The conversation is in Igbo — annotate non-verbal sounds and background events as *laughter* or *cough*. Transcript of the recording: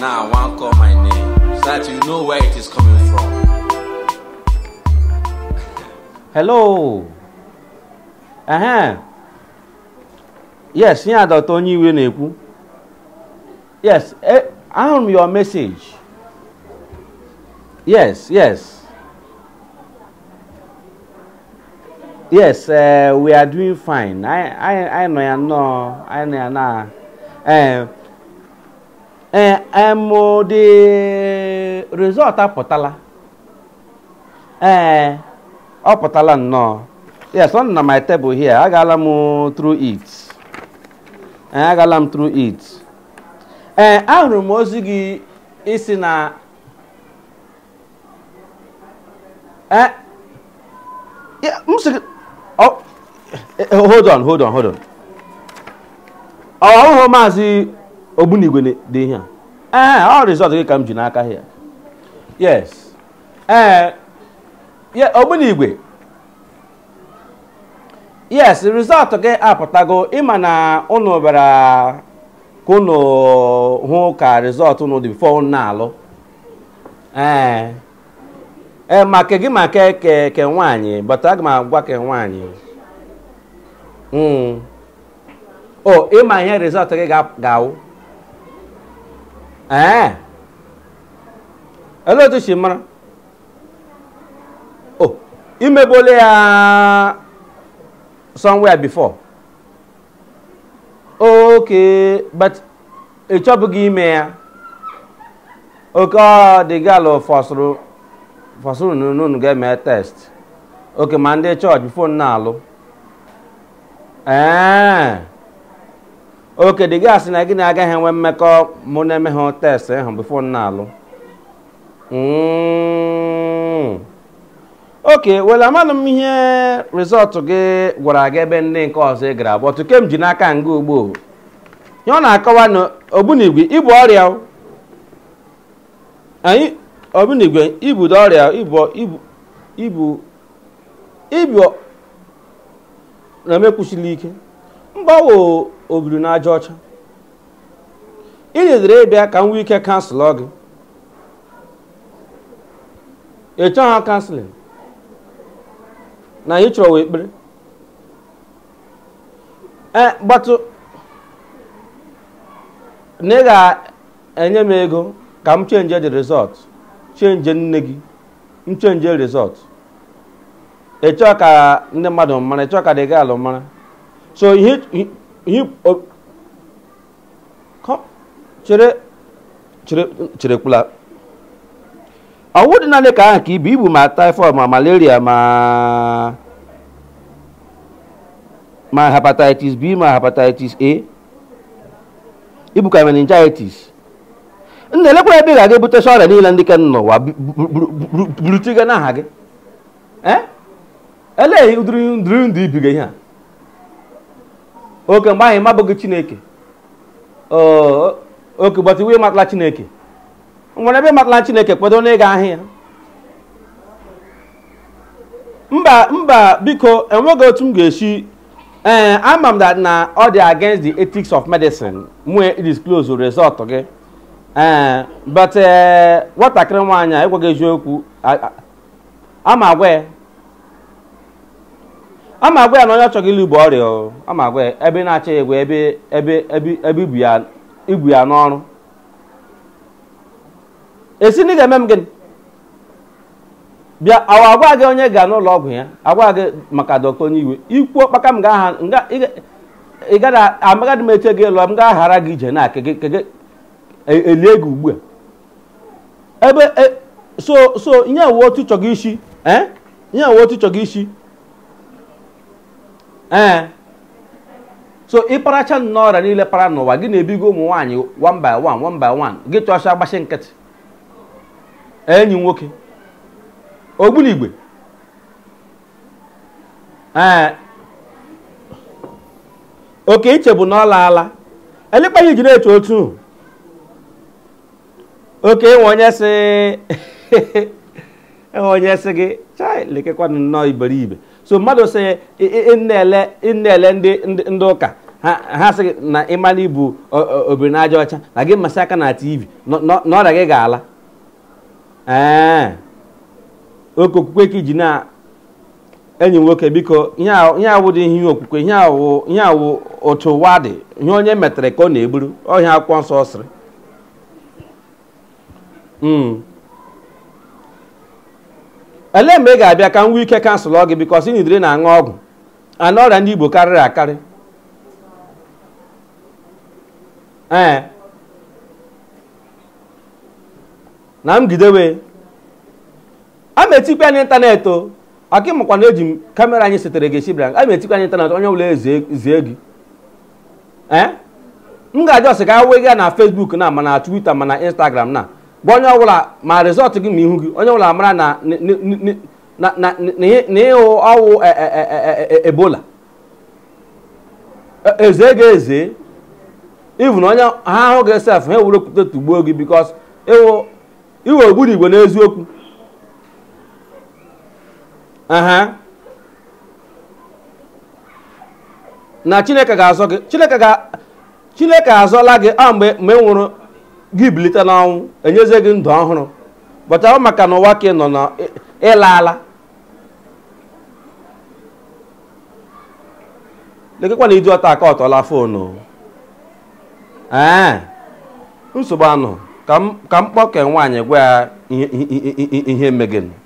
Now I want call my name so that you know where it is coming from. Hello. Uh-huh. Yes, yeah, Dr. Onyiwe Neku. Yes, eh, I'm your message. Yes, yes. Yes, uh, we are doing fine. I I I know I know I know. Uh, ee emụdị rizọt apụtala ee ọ pụtala nnọọ yes ọ na my table here agala m through it ee agala m through it ee ahụrụ m ozi gị isi na ee m e, hold on hold on hold on ọ maazị ogbunigwe dị ihe a eh, ọ rizọt gị ka m ji n'aka ya yes ee eh, ogbunigwe yes rizọt gị apụtago ịma na unu bịara ka unu hụ ka rizọt unu dị bifo na-alụ ee eh, ee maka gị ma ke ke ke nwaanyị bata aga m agwa ke nwaanyị hmm. o oh, ịma ihe rizọt gị ga-awụ ee Elu otu shi mara oh imegbola ya somewhere before okay but ị chọbụghị ime ya oka oke ọdịgalụ fọsụrụ fọsụrụ n'unu ga-eme test oke ma ndị chọọchị fon na-alụ oke dị gị asị na gị na agaghị enwe mmekọ mụ na-eme ha test ahụ bifo na-alụ oke were amanụ m ihe rịzọtụ gị gwara gị ebe ndị nke ọzọ ị gara abụọ kem ji n'aka nga ugbo ihe ọ na-akọwa na ogbunigwe ibu ọrịa anyị ogbunigwe ibudo ọrịa ibu ibu na-emekwusili ike mgbawo o biri n'aja ọcha ịdịdịrị ịbịa ka m nwee ike kansụl gị Echọ ha kanselin na ị chọrọ kpere. ee gbatụ na ị ga-enye m ego ka m chenje the result chenje nne gị m chenje result ịchọ ka ndị mmadụ mara ịchọ ka dị gị alụ mara so yi o chere chere chere kpula ọwụ dị naanị ka ahụ ka ibu ibu ma typhoid ma malaria ma ma hepatitis b ma hepatitis a ibu ka meningitis nna-elekwa ebe ị ga-aga ebutesi ọrịa niile ndị ke n'ụwa burutiga n'aha gị eleghị ụdịrị ndụ ibiga ihe a oke mgbe anyị mabụghị chineke oke but iwe matala chineke nwere ebe matala chineke kpedo ịga ahịa mba mba biko enweghị otu m ga-esi ee eh, ama m that na ọ dị against the ethics of medicine close disclose result gị ee eh, but eh, nwatakịrị nwaanyị ekweghị eziokwu ama agwa ya ama agwa ya na onye ọchọghị ilu bụ ọrịa ama agwa ya ebe na-achọ ya egwe ebe ebe ebe ibu ya n'ọrụ esi na ị ga-eme m gịnị bịa awa agwa gị onye ga n'ụlọ ọgwụ ya agwa gị maka dọkịta onye iwe ikwuo kpaka m ga-aha amagadi m eche gị ịlụ m ga-aghara gị ije na elie gị e, ugbu a ebe e, so so ihe uwe otu chọgị isi eh? ihe uwe otu chọgị isi ee eh. so ịparacha nnọọ ọrịa niile para n'ụwa gị na-ebigo ụmụ nwaanyị one by one one by one gị chọcha agbachi nkịtị enyi nwoke ogbunigwe ee eh. oke iche bụ na ọ laala elikpeghị ji na-eche otu oke ịnwe onye sị *laughs* onye sị gị chai lekekwanụ nnọọ iberibe so mmadụ sị na-ele na-ele ndị ụka ha sị na ịmanụ ibu obiri na aja ọcha na gị masị aka na tv na ọrịa gị ga-ala ee oke okwukwe ka iji na enyi nwoke biko ihe awụ dị ihe okwukwe ihe awụ otu ụwa dị ihe onye metere ka ọ na-eburu ọhịa akwụkwọ nsọ sịrị hmm. ele mgbe ị ga-abịa ka m nwee ike kansụlọ gị bikos ị nidere na-aṅụ ọgwụ ana ọrịa ndị igbo karịrị akarị ee na m a metikwa ya n'ịntanetị o aka mụkwa na eji m kamera anyị setere gị esi bịara a metikwa ya n'ịntanetị onye ọbụla ezie gị ee m ga-ajọsị ka awụ gị ya na fesbuk na mana twita mana instagram na bụ onye ọbụla ma rịzọtụ gị ma ihu gị onye ọbụla mara na ịhụ ọwụ e, e, e, ebola eze ga-eze na onye ha ahụ gị esef ha ewere okwute tugbuo gị bikos iwe ogburu igwe n'eziokwu na chineke ga-azọ gị chineke ga azọla gị ọ ah, mgbe mgbe nwụrụ gị bilite n'ọnwụ enyezie gị ndụ ọhụrụ bọchara maka na ụwa ka ị nọ na ịla ala lekekwa na iji ọta aka ọtọla foonu nsogbu anụ ka m kpọke nwaanyị gwa ya ihe megịnụ